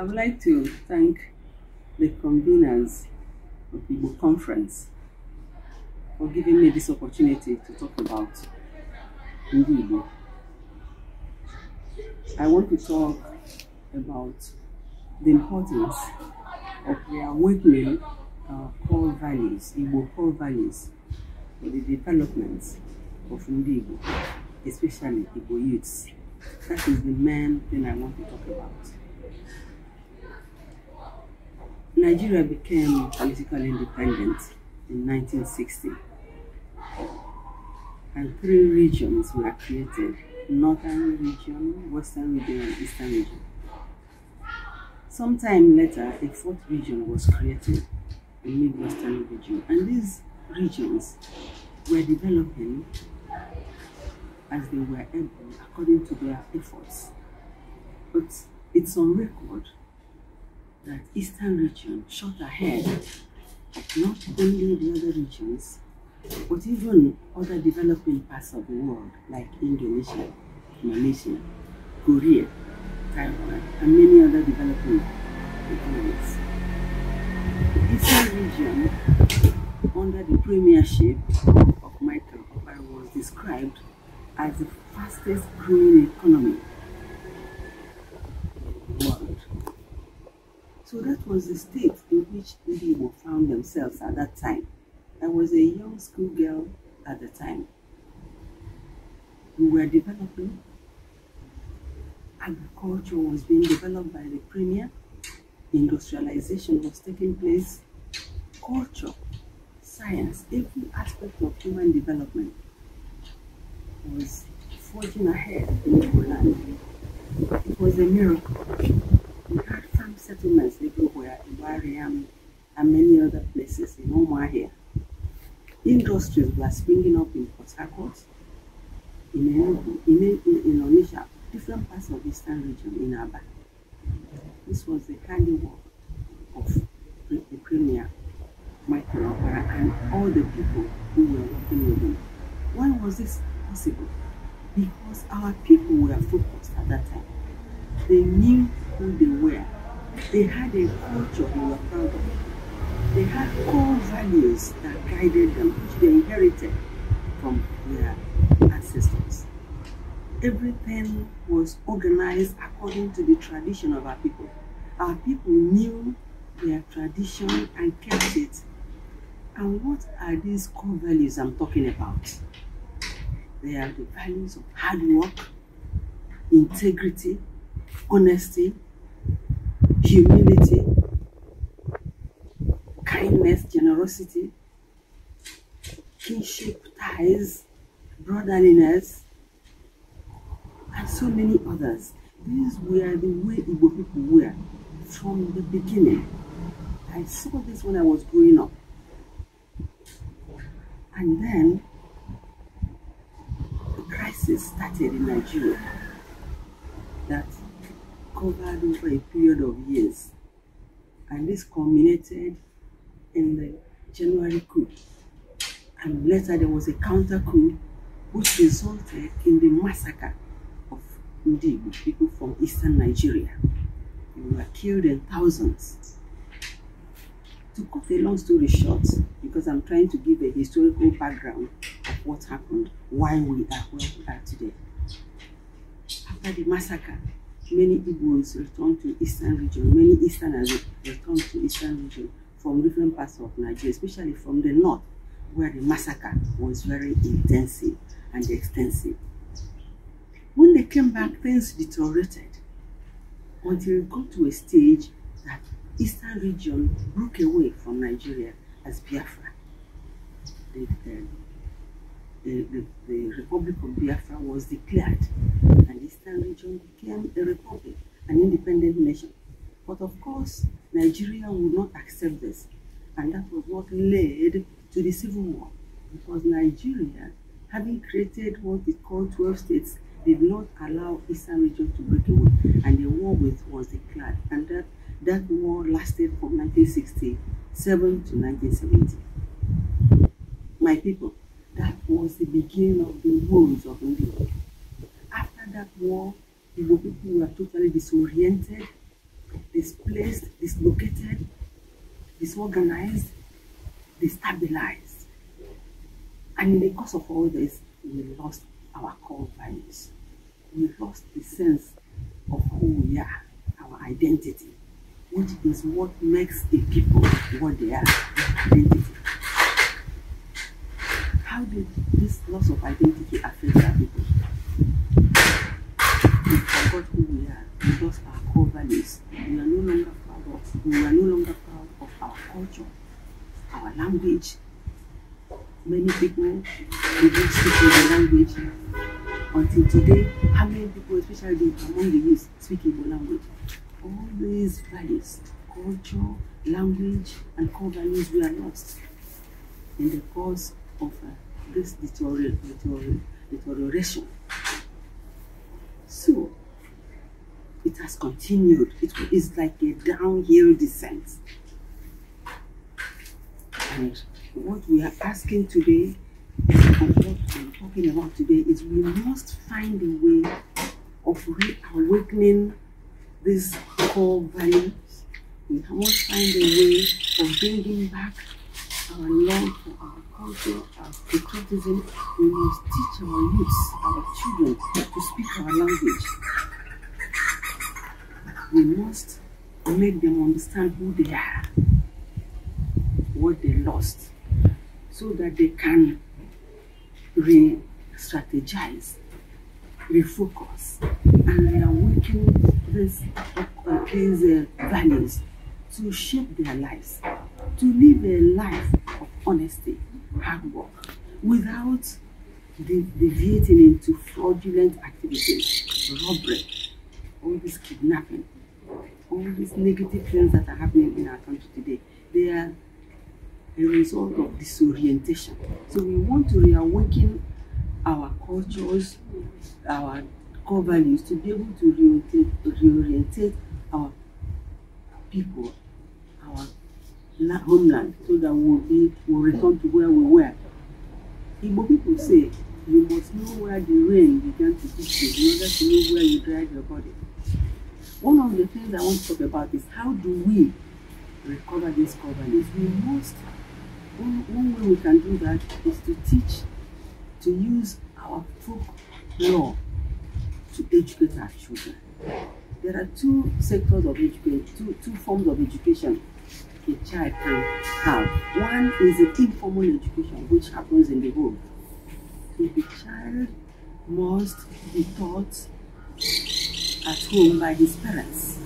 I would like to thank the conveners of the Conference for giving me this opportunity to talk about Ndi I want to talk about the importance of reawakening our uh, core values, Igbo core values, for the development of Ndi especially Igbo youths. That is the main thing I want to talk about. Nigeria became politically independent in 1960 and three regions were created northern region, western region, and eastern region. Sometime later, a fourth region was created, the midwestern region, and these regions were developing as they were able according to their efforts. But it's on record that Eastern region shot ahead not only the other regions, but even other developing parts of the world like Indonesia, Malaysia, Korea, Taiwan, and many other developing economies. The Eastern region, under the premiership of Michael Obama, was described as the fastest growing economy So that was the state in which Igbo found themselves at that time. I was a young schoolgirl at the time. We were developing. Agriculture was being developed by the premier. Industrialization was taking place. Culture, science, every aspect of human development was forging ahead in Poland. It was a miracle settlements everywhere in Wariam um, and many other places in Omaha. Industries were springing up in Port Harcourt, in, Enugu, in, in, in Onisha, different parts of eastern region in Aba. This was the handiwork of the premier, Michael Opera, and all the people who were working with him. Why was this possible? Because our people were focused at that time. They knew who they were they had a culture they were proud of. They had core values that guided them, which they inherited from their ancestors. Everything was organized according to the tradition of our people. Our people knew their tradition and kept it. And what are these core values I'm talking about? They are the values of hard work, integrity, honesty, humility, kindness, generosity, kinship ties, brotherliness, and so many others. These were the way Igbo people were from the beginning. I saw this when I was growing up. And then the crisis started in Nigeria that over a period of years. And this culminated in the January coup. And later there was a counter coup which resulted in the massacre of Ndigo people from eastern Nigeria. They were killed in thousands. To cut a long story short, because I'm trying to give a historical background of what happened, why we are where we are today. After the massacre, many Igbos returned to eastern region, many Easterners returned to eastern region from different parts of Nigeria, especially from the north, where the massacre was very intensive and extensive. When they came back, things deteriorated until it got to a stage that eastern region broke away from Nigeria as Biafra. The, the, the, the Republic of Biafra was declared Eastern region became a republic, an independent nation. But of course, Nigeria would not accept this. And that was what led to the civil war. Because Nigeria, having created what is called 12 states, did not allow Eastern region to break away. And the war with was declared. And that, that war lasted from 1967 to 1970. My people, that was the beginning of the woes of India that war, there were people who were totally disoriented, displaced, dislocated, disorganized, destabilized. And in the course of all this, we lost our core values. We lost the sense of who we are, our identity, which is what makes a people what they are, identity. How did this loss of identity affect our people? we are no longer proud of our culture, our language. Many people begin speaking the language. Until today, how many people, especially among the youth, speak Igbo language? All these values, culture, language, and core values were lost in the course of uh, this deterioration. So, it has continued. It is like a downhill descent. And what we are asking today and what we are talking about today is we must find a way of reawakening these core values. We must find a way of bringing back our love for our culture, our patriotism. We must teach our youths, our children, to speak our language we must make them understand who they are, what they lost, so that they can re-strategize, refocus, and reawaken these, uh, values to shape their lives, to live a life of honesty, hard work, without deviating into fraudulent activities, robbery, all this kidnapping, all these negative things that are happening in our country today, they are a result of disorientation. So we want to reawaken our cultures, our core values to be able to reorientate, our people, our homeland, so that we'll, be, we'll return to where we were. Igbo people say, you must know where the rain began to hit you in order to know where you dried your body. One of the things I want to talk about is how do we recover this covenant? We must, one, one way we can do that is to teach, to use our folk law to educate our children. There are two sectors of education, two, two forms of education a child can have. One is the informal education, which happens in the home. So the child must be taught at home by his parents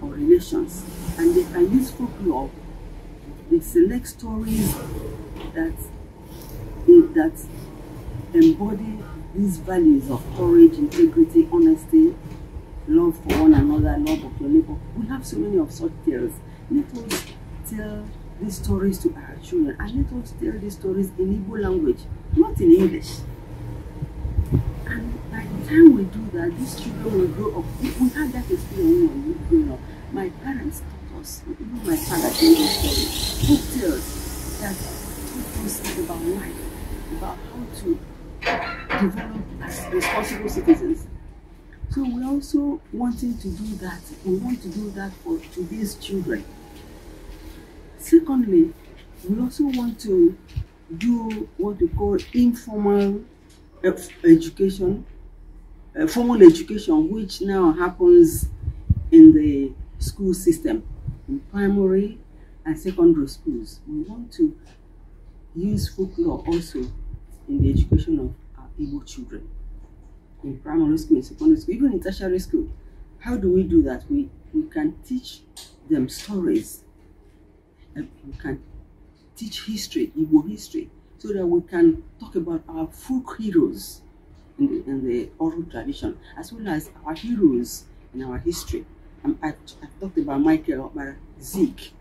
or relations, and they can use folklore. They select stories that that embody these values of courage, integrity, honesty, love for one another, love of your neighbor. We have so many of such tales. Let us tell these stories to our children and let us tell these stories in Igbo language, not in English time we do that, these children will grow up. If we had that experience when we were growing up, my parents taught us, even my father told us that taught us about life, about how to develop as responsible citizens. So we're also wanting to do that. We want to do that for today's children. Secondly, we also want to do what we call informal education uh, formal education, which now happens in the school system, in primary and secondary schools. We want to use folklore also in the education of our able children, in primary school, in secondary school, even in tertiary school. How do we do that? We, we can teach them stories. Uh, we can teach history, Igbo history, so that we can talk about our folk heroes in, in the oral tradition, as well as our heroes in our history. Um, I, have talked about Michael, about Zeke,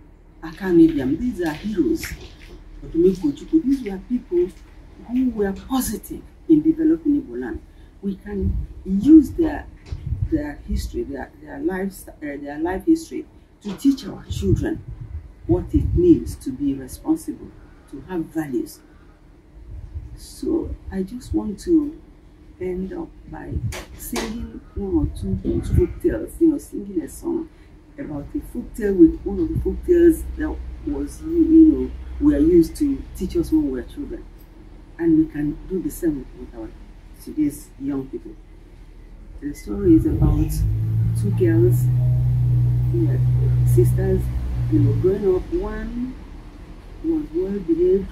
Akanibiam. Um, these are heroes. These were people who were positive in developing Igbo land. We can use their their history, their, their, lives, uh, their life history to teach our children what it means to be responsible, to have values. So I just want to end up by singing one or two folk tales, you know, singing a song about a folk tale with one of the folk tales that was, you know, we are used to teach us when we were children. And we can do the same with our today's young people. The story is about two girls, yeah, sisters, you know, growing up. One was well behaved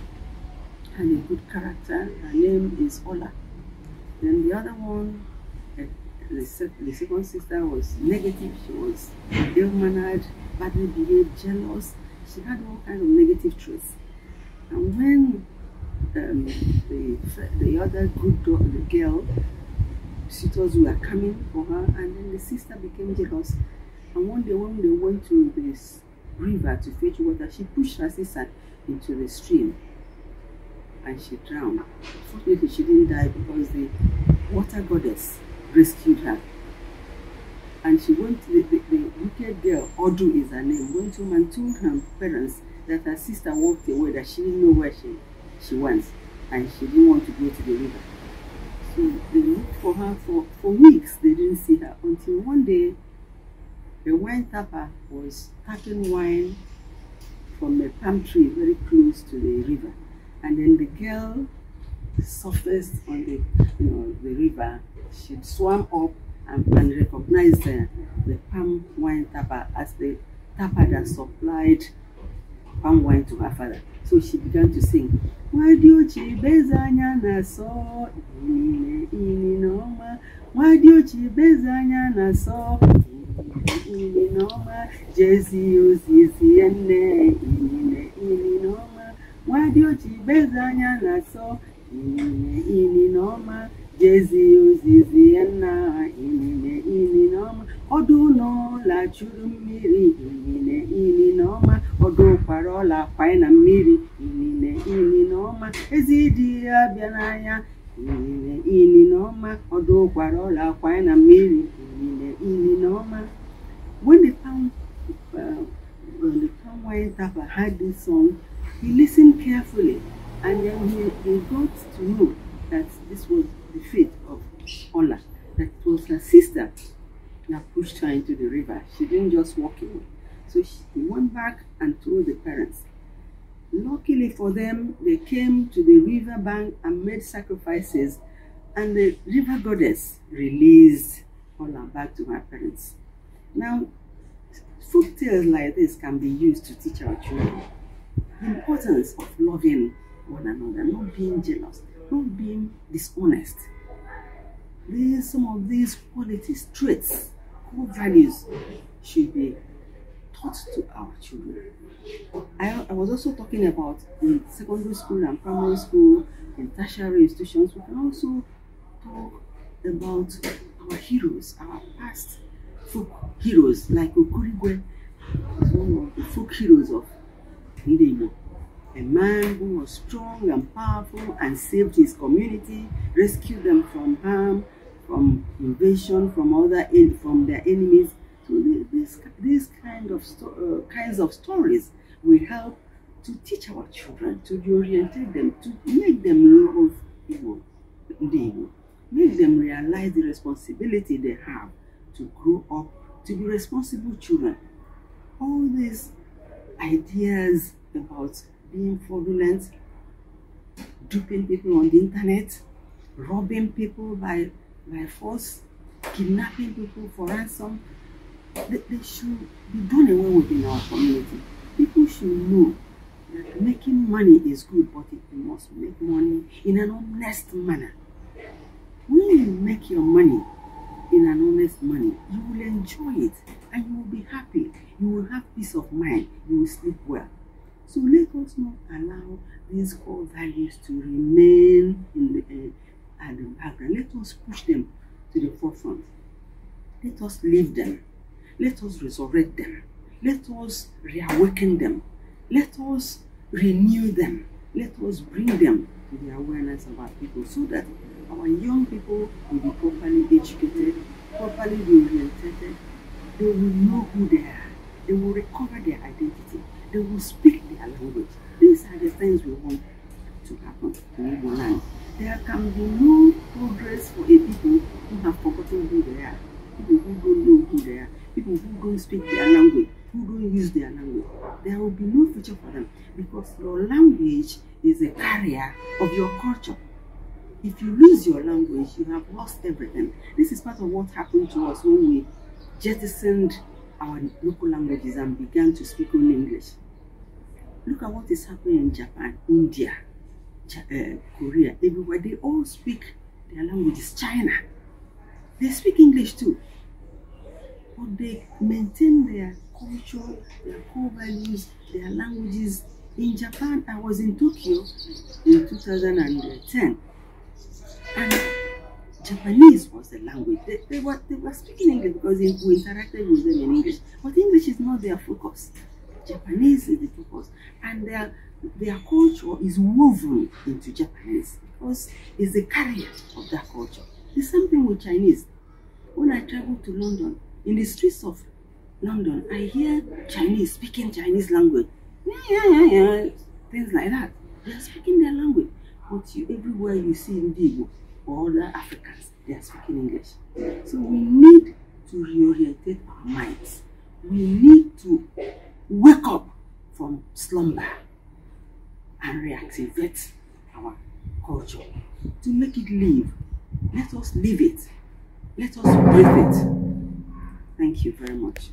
and a good character. Her name is Ola. Then the other one, eh, the, second sister was negative. She was ill-mannered, badly behaved, jealous. She had all kinds of negative traits. And when um, the, the other good girl, the girl, she told coming for her, and then the sister became jealous. And one day when they went to this river to fetch water, she pushed her sister into the stream and she drowned. Fortunately, she didn't die because the water goddess rescued her. And she went, the, the, the wicked girl, Odu is her name, went home and told her parents that her sister walked away, that she didn't know where she, she went, and she didn't want to go to the river. So they looked for her for, for weeks. They didn't see her until one day the wine tapper was tapping wine from a palm tree very close to the river. And then the girl surfaced on the, you know, the river. She swam up and, and recognized the the palm wine tapper as the tapper that supplied palm wine to her father. So she began to sing. na so ininoma nwadiochibeze anya na so ininoma jezi ozizi nne inine nwadiochibeze anya na-asọ inine inine ọma jezi ozizi ya inine inine ọma ọdụ ụlọla chụrụ mmiri inine inine ọma ọdụ ụkwara ọla akwanye na mmiri inine inine ọma ezi dị ya bịa inine inine ọma ọdụ ụkwara ọla akwanye na mmiri inine inine ọma when the town uh, when the town went up had this song He listened carefully and then he, he got to know that this was the fate of Ola, that it was her sister that pushed her into the river. She didn't just walk away. So she went back and told the parents. Luckily for them, they came to the river bank and made sacrifices, and the river goddess released Ola back to her parents. Now, folk tales like this can be used to teach our children importance of loving one another, not being jealous, not being dishonest. These, some of these qualities, traits, core values should be taught to our children. I, I was also talking about in secondary school and primary school, and tertiary institutions, we can also talk about our heroes, our past folk heroes, like Okurigwe one of the folk heroes of a man who was strong and powerful and saved his community, rescued them from harm, from invasion, from other from their enemies. So this, these kind of uh, kinds of stories will help to teach our children, to orientate them, to make them love Igbo, make them realize the responsibility they have to grow up, to be responsible children. All these ideas about being fraudulent, duping people on the internet, robbing people by, by force, kidnapping people for ransom. They, they should be done away with in our community. People should know that making money is good, but you must make money in an honest manner. When you make your money in an honest manner, you will enjoy it and you will be happy. You will have peace of mind. You will sleep well. So let us not allow these core values to remain in the, uh, at the background. Let us push them to the forefront. Let us live them. Let us resurrect them. Let us reawaken them. Let us renew them. Let us bring them to the awareness of our people so that our young people will be properly educated, properly oriented, they will know who they are. They will recover their identity. They will speak their language. These are the things we want to happen in the land. There can be no progress for a people who have forgotten who they are, people who don't know who they are, people who don't speak their language, who don't use their language. There will be no future for them because your language is a carrier of your culture. If you lose your language, you have lost everything. This is part of what happened to us when we jettisoned our local languages and began to speak only English. Look at what is happening in Japan, India, Ch uh, Korea, everywhere. They all speak their languages. China, they speak English too. But they maintain their culture, their core values, their languages. In Japan, I was in Tokyo in 2010. And Japanese was the language. They, they, were, they were speaking English because we interacted with them in English. But English is not their focus. Japanese is the focus. And their, their culture is woven into Japanese because it's the carrier of that culture. The same thing with Chinese. When I travel to London, in the streets of London, I hear Chinese speaking Chinese language. Yeah, yeah, yeah, yeah. Things like that. They are speaking their language. But you, everywhere you see Indigo, all the Africans, they are speaking English. So we need to reorientate our minds. We need to wake up from slumber and reactivate our culture to make it live. Let us live it. Let us breathe it. Thank you very much.